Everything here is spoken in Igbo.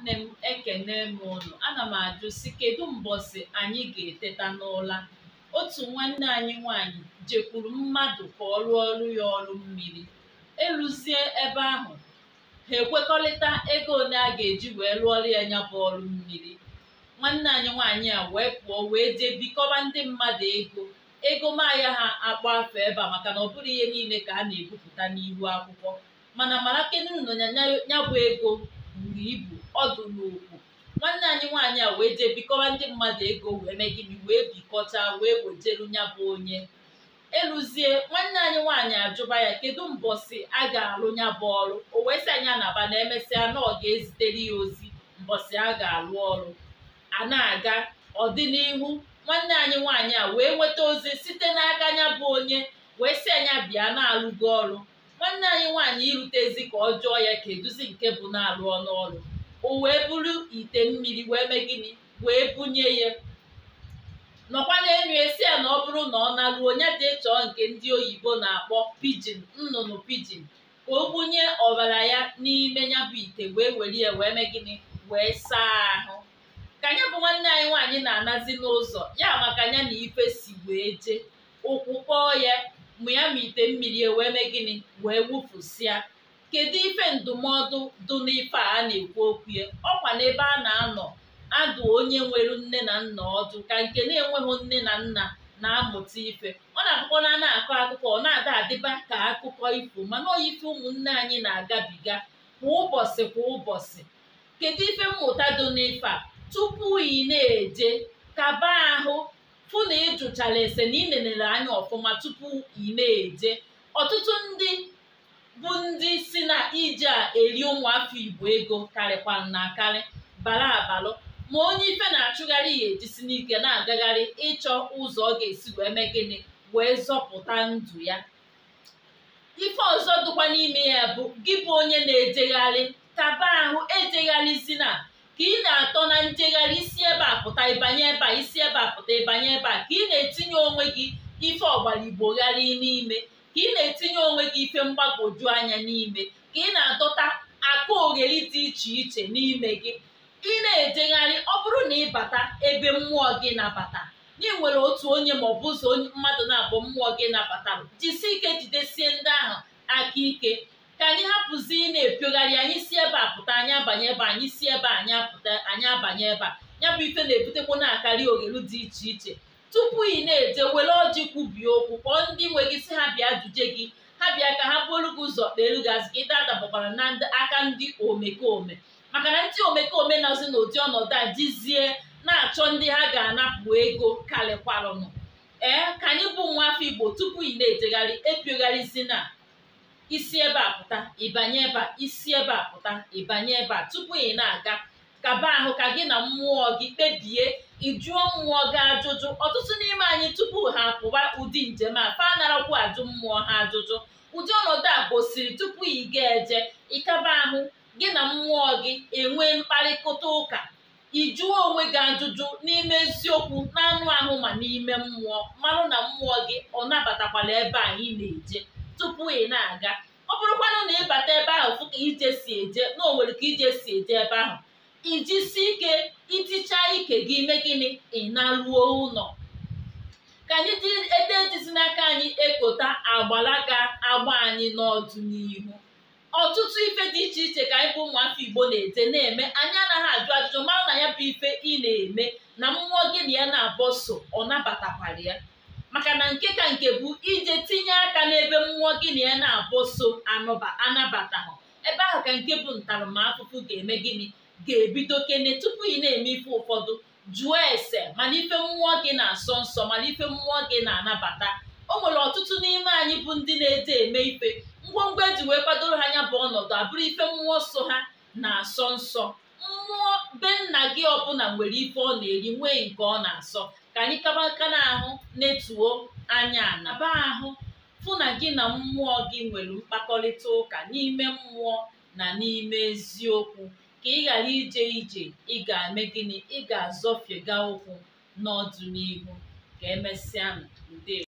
nwanne m ekene m unu ana m ajụ si kedu mbọsị anyị ga-eteta n'ụla otu nwanne anyị nwanyị jekwuru mmadụ ka ọ rụọ ọrụ ya ọrụ mmiri eluzie ebe ahụ ha ekwekọrịta ego ole a ga-eji wee rụọrụ ya nya bụ ọrụ mmiri nwanne anyị nwaanyị a wee pụọ wee jee bikọba ndị mmadụ ego ego maya ha akpa afọ ebe a maka na ọ bụrụ ihe niile ka a na-ebupụta n'ihu akwụkwọ mana mara kenu nọ ya bụ ego buru ibu ọdụ n'okwu nwanne anyị nwaanyị a wee jee bikọwa ndị mmadụ ego wee mee gịnị wee bikọta wee wejeru ya bụ onye eluzie nwanne anyị nwaanyị ajụba ya kedu mbọsị a ga-alụ ya bụ ọrụ o wee anya na anaba na emesịa na ọ ga-ezitere ya ozi mbọsị a ga-alụ ọrụ a na-aga ọdịnihu nwanne anyị nwaanyị a wee nweta ozi site n'aka ya bụ onye wee sị anya bịa na-alụgo ọrụ nwanne anyị nwaanyị irutezi ka ọ jụọ ya eduzie nke bụ na-alụ ọnụ ọrụ o wee bụrụ ite mmiri wee mee gịnị wee bunye ya nọkwa enyo esi ya na ọ bụrụ na ọ naruo onye dị ịchọọ nke ndị oyibo na-akpọ pijin nnụnụ pijin ka o bunye ọbara ya n'ime ya bụ ite wee were ya wee mee gịnị wee saa ahụ ka nya bụ nwanne anyị nwaanyị na-anazi n'ụzọ ya maka ya na ife si wee jee ụkwụ kpọọ ya ma ya ma ite mmiri wee mee gịnị wee wụpụsịa kedu ife ndụmọdụ dụ n'ife a na-ekwu okwu ya ọkwa n'ebe a na-anọ adụ onye nwere nne na nna ọdụ ka nke na-enweghị nne na nna na-amụta ife ọ na-akụkọ na na-akọ akụkọ ọ na-ada adịba ka akụkọ ifo mana oyi ife ụmụnne anyị na-agabiga kwa ụbọchị kwa ụbọchị kedu ife mmụta dụ n'ife a tupu ị na-eje kaba ahụ fụ na ị jụchara ese na ị nenere anya ọfụma tupu ị na-eje ọtụtụ ndị bụ ndị si na ije a eri ụmụafọ igbo ego karịkwara na akarị bara abalụ ma onye ife na-achụgharị ya ejisi n'ike na-agagharị ịchọ ụzọ ọ ga-esi wee mee gịnị wee zọpụta ndụ ya ife ọzọ dịkwa n'ime ya bụ gị bụ onye na-ejegharị taba ahụ ejegharịzi na ka ị na-atọ na njegharị isi ebe a pụta ịbanye ebe a isi ebe a pụta ịbanye ebe a ka ị na-etinye onwe gị ife ọgbara igbo gharị n'ime ka ị na-etinye onwe gị ife mgbagwoju anya n'ime ka ị na-adọta aka ogheri dị iche iche n'ime gị ị na-ejegharị ọ bụrụ na ị bata ebe mmụọ gị nabata na ị nwere otu onye ma ọ bụ ụzọ mmadụ na-abụ mmụọ gị nabatara jisi ike jidesie ndị ahụ aka ike ka anyị hapụzi ị na-epiogharị anyị si ebe a pụta anyị abanye ebe anyị si ebe anyị apụta anyị abanye ebe a ya bụ ife na-ebutekwu na-akarị ogheru dị iche iche tupu ị na-eje were ọjị kwubie okwu kpọọ ndị nwe gị si bịa gị ha bịa ka ha buolu gị ụzọ kpeelu gị azụ ka ị na aka ndị omekome maka na ndị omekome na-azụ n'ụdị ọnọdụ a jizie na-achọ ndị ha ga-anapụ ego kalịkwarụnụ ee ka anyị bụ nwa afọ igbo tupu ị na-ejegharị epiogharịzi na isi ebe a pụta ịbanye ebe a isi ebe a pụta ịbanye ebe a tupu ị na-aga kaba ahụ ka gị na mmụọ gị kpebie ịjụọ mmụọ gị ajụjụ ọtụtụ n'ime anyị tupu ha pụwa ụdị njem a fa narakwu ajụ mmụọ ha ajụjụ ụdị ọnọdụ a gosiri tupu ị ga-eje ịkaba ahụ gị na mmụọ gị enwee mkparịta ụka ịjụọ onwe gị ajụjụ n'ime eziokwu n'anụ ahụ ma n'ime mmụọ mmanụ na mmụọ gị ọ nabatakwala ebe a ị na-eje tupu ị na-aga ọ bụrụkwanụ na ịbata ebe ahụ fụ ije si eje na o nwere ka ije si eje ebe ahụ ijisi ike iticha ike gị mee gịnị ịnaluo ụlọ ka anyị dị ede jizi n'aka anyị ekota agbara ga-agba anyị n'ọdịnihu ọtụtụ ife dị iche iche ka anyị bụ ụmụafọ Igbo na-ete na-eme anyị anaghị ajụ ajụjụ mara na ya bụ ife ị na-eme na mmụọ gị na ya na-abọ so ọ nabatakwara ya maka na nke ka nke bụ ije tinye aka n'ebe mmụọ gị na ya na-abọ so anabataghị ebe ahụ ka nke bụ ntaramahụhụ ga-eme gịnị ga-ebido kene tupu ị na-eme ife ụfọdụ jụọ ese mana ife mmụọ gị na-asọ nsọ mana ife mmụọ gị na-anabata o nwere ọtụtụ n'ime anyị bụ ndị na-ede eme ife ngwongwo eji wee kwadoro ha anya bụ ọnọdụ abụrụ ife mmụọ so ha na-asọ nsọ mmụọ be nna gị ọbụla nwere ife ọ na-eri nwee nke ọ na-asọ ka anyị kaba aka n'ahụ netuo anya anaba ahụ fụ na gị na mmụọ gị nwere mkpakọrịta ụka n'ime mmụọ na n'ime eziokwu ka ị ghara ije ije ị ga-eme gịnị ị ga-azọfiega ụkwụ n'ọdịnihu ka emesịa ndewo